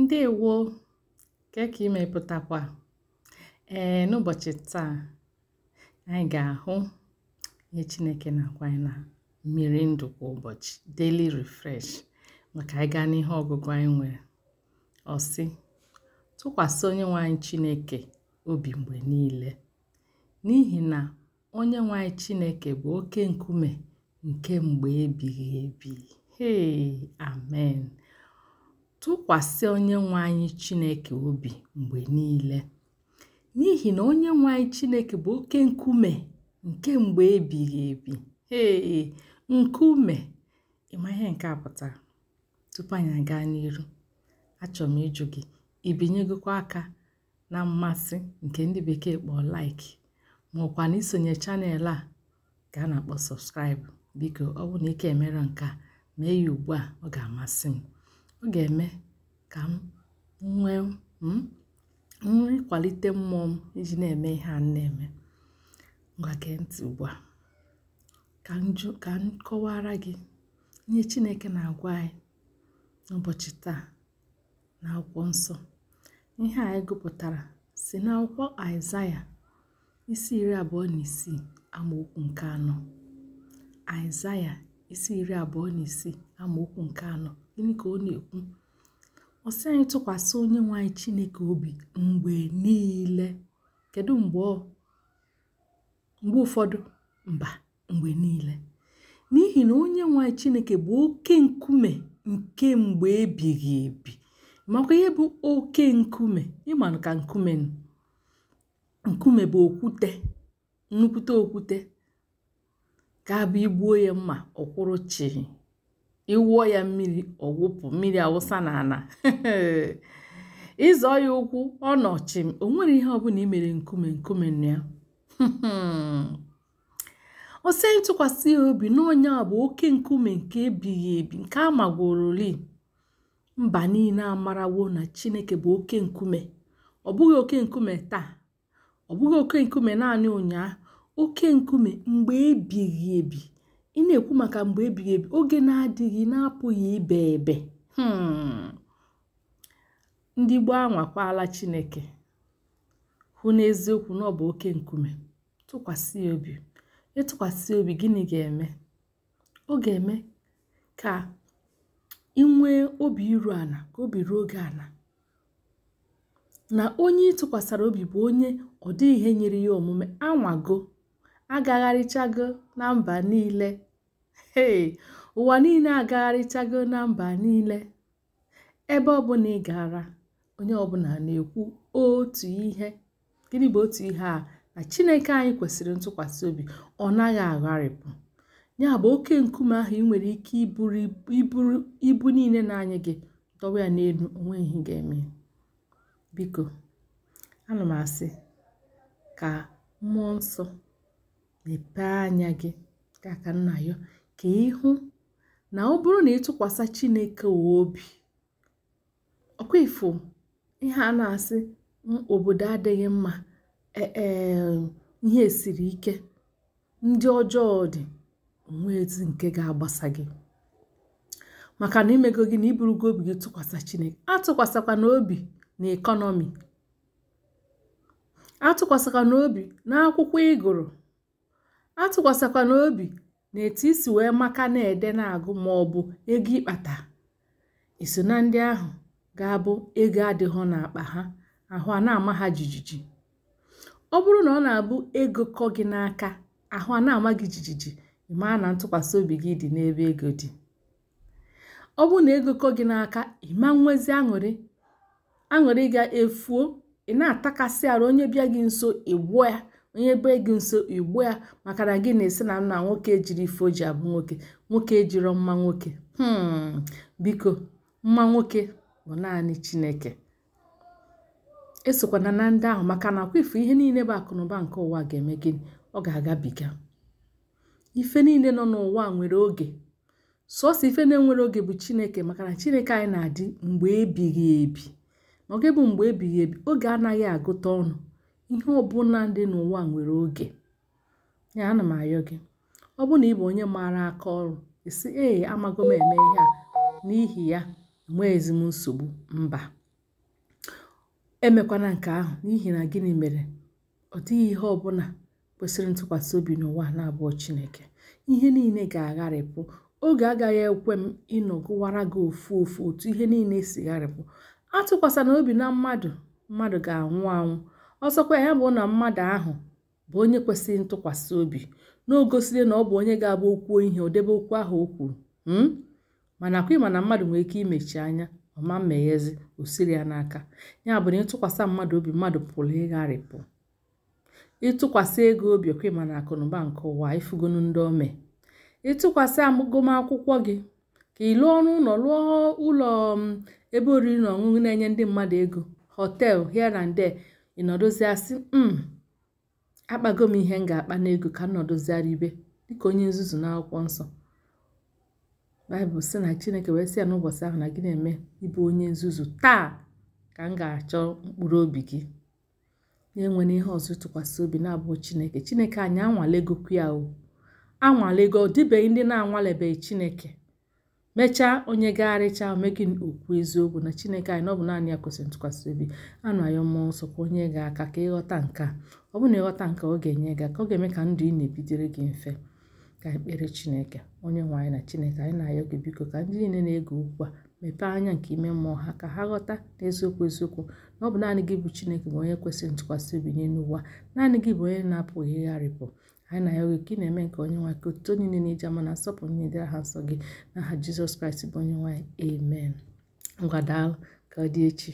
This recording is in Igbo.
Ndewo! Kee ka imepụtakwa? Ee, n'ụbọchị taa, anyị ga-ahụ ihe Chineke na-agwa anyị na mmiri ndụ kwa ụbọchị daily refresh maka anyị gaa n'ihe ọgụgụ anyị nwere. Ọ sị, tụkwasị onye nwanyị Chineke obi mgbe niile n'ihi na onye nwanyị Chineke bụ oke nkume nke mgbe ebighị ebi. Hei! Amen! tụkwasị onyenwe anyị chineke obi mgbe niile n'ihi na nwe anyị chineke bụ oke nkume nke mgbe ebighị ebi ee nkume ịma ihe nke a pụtara tupu anyị aga n'iru achọrọ m ịjụ gị ibinyegokwa aka na mmasị nke ndị bekee kpọọ like maọkwa na isonye chanel a ka a na-akpọ sọbskraịbụ biko ọ bụ na ike emere nke a mee ya ugbu a ọ ga-amasị m ọ ga-eme ka m nwee hmm, nri kwalite mmụọ m iji na-eme ihe a na-eme ngwa ntị ugbu a ka m kọwara gị ihe Chineke na-agwa anyị n'ụbọchị taa na akwụkwọ nsọ ihe anyị gụpụtara si n'akwụkwọ Aịzaya isi iri abụọ na isii amaokwu nke anọ Aịzaya isi iri abụọ na isii amaokwu nke anọ gịnị ka ọ na-ekwu ọ sị anyị tụkwasị onye nwe anyị chineke obi mgbe niile kedu mgbe ụfọdụ mba mgbe niile n'ihi na onye nwe anyị chineke bụ oke nkume nke mgbe ebighị ebi makwa ihe bụ oke nkume ịmanụ ka nkume nkume bụ okwute nnukwute okwute ka bụ igbuo ya mma ọkwụrụ chi ị ya mmiri ọ wụpụ mmiri awụsa na ana ịzọ ya ụkwụ ọ nọchi o nwere ihe ọbụla i mere nkume nkume na ya o si ntụkwasị ya obi n'onye a bụ oke nkume nke ebighị ebi nke a magworoli mba niile amarawo na chineke bụ oke nkume ọ bụghị oke nkume taa ọ bụghị oke nkume naanị ụnyaahụ oke nkume mgbe ebighị ebi ị na-ekwu maka mgbe ebighị ebi oge na-adịghị na-apụghị ibe ebe hmm. ndị gbaa anwakwala chineke hụ n'eziokwu na ọ bụ oke nkume tụkwasị obi ịtụkwasị e obi gịnị ga-eme ọ ga-eme ka ị nwee obi iru ala ka obi ruo oge ala na onye ịtụkwasara obi bụ onye ọ dịghị ihe nyere ya omume anwago agagharịchago na mba niile ụwa niile agagharịchago na mba niile ebe ọbụla ị gara onye ọbụla na-ekwu otu ihe gịnị bụ otu ihe a na chineke anyị kwesịrị ntụkwasị obi ọ naghị agharịpụ ya bụ oke nkume ahụ ị nwere ike iburu ibu niile na-anyị gị dọwa ya n'elu onwe ihe ga-eme biko ana m asị ka mmụọ nsọ mepee anya gị kaka nna ya ka ịhụ na ọ bụrụ na ịtụkwasị chineke obi ọkwa ifo ihe a na-asị obodo adịghị mma ee e, ihe siri ike ndị ọjọọ dị onwe ezi nke ga-agbasa gị maka na imego gị na gị obi gị tụkwasị chineke atụkwasịkwa n'obi na ekọnọmi atụkwasịkwa n'obi na akwụkwọ ị gụrụ atụkwasịkwana obi na etu isi wee maka na-ede na-agụ ma ọ bụ ego ịkpata iso na ndị ahụ ga-abụ ego adịghọ n'akpa ha ahụ a na-ama ha jijiji ọ bụrụ na ọ na-abụ ego kọ gị n'aka ahụ a na-ama gị jijiji ịmaa na ntụkwasị obi gị dị n'ebe ego dị ọ bụrụ na ego kọ gị n'aka ịma nwezi aṅụrị aṅụrị ga-efuo ị na-atakasị arụ onye bịa gị nso gbuo ya onye bee gị nso igbu ya maka na gị na-esi na nna nwoke ejiri ife oji abụ nwoke nwoke ejiro mma nwoke hmm. biko mma nwoke bụ naanị chineke esokwana na ndị ahụ maka na akwafu ihe niile bụ akụnụba nke ụwa ga-eme gịnị ọ ga-agabiga ife niile nọ n'ụwa nwere oge sọsọ ife na-enwere oge bụ chineke maka na chineke anyị na-adị mgbe ebighị ebi ma ga bụ mgbe ebighị ebi oge anaghị agụta ọnụ ihe ọbụla dị n'ụwa nwere oge ya ana m ayọ gị ọ bụrụ na ị bụ onye maara aka ọrụ isi ee amago m eme ihe a n'ihi ya enweghịzi m nsogbu mba emekwana nke ahụ n'ihi na gịnị mere ọ dịghị ihe ọbụla kwesịrị ntụkwasị obi n'ụwa na-abụọ chineke ihe niile ga-agharịpụ oge agaghị ekwe m ịnọgụwara gị ofu ofu otu ihe niile e si gharịpụ atụkwasịna obi na mmadụ mmadụ ga-anwụ anwụ ọzọkwa ya bụ na mmadụ ahụ bụ onye kwesịrị ntụkwasị obi na na ọ bụ onye ga-abụ okwuo ihe odebe okwu ahụ o kwuru hmm? mana akwa ịma na mmadụ nwere ike imechi anya ọma mmeghezi osiri ya n'aka ya bụ na ịtụkwasị mmadụ obi mmadụ pụrụ ịgharịpụ ịtụkwasị ego obi ọkwa ịma na akụnụba nke ụwa ifugonu ndị ome ịtụkwasị agụmakwụkwọ gị ka ịlụ lụọ ọrụ ụlọ lụọ ụlọ um, ebe oriri na ọṅụṅụ na-enye ndị mmadụ ego họtel here and there ị nọdụzịa m hmm, akpago m ihe m ga-akpa n'ego ka m ibe dịka onye nzuzu n'akwụkwọ nsọ baịbụl sị na chineke wee sị ya n'ụbọchị ahụ na gị na-eme ịbụ onye nzuzu taa ka m ga-achọ mkpụrụ obi gị na na ihe ọzọ tụkwasị obi na-abụghị chineke chineke anyị anwalego ya o anwalego ọ dịbeghị ndị na-anwalebeghị chineke mechaa onye ga-arịcha gị okwu eziokwu na chineke anyị na ọ bụ naanị ya kwesịrị ntụkwasị obi anụ anyị mmụọ nsọ ka onye ga aka ka ịghọta nke a ọ bụrụ na ịghọta nke ọ ga-enye gị ka ọ ga-eme ka ndụ ị na-ebidere gị mfe ka ekpere chineke onye nwe anyị na chineke anyị na-ayọ gị biko ka ndị niile na-ege okwu a mepee anya nke ime mmụọ ha ka ha ghọta n'eziokwu eziokwu na ọ bụ naanị gị bụ chineke bụ onye kwesịrị ntụkwasị obi nye n'ụwa naanị gị bụ onye na-apụghị ịgharịpụ anyị na ya oge na-eme nke onye nwanyị ka otuto niile na-eji ama na nsọpụrụ niile dịra ha nsọ gị n'aha jizọs kraịst bụ onye nwanyị amen ngwa daalụ ka dị echi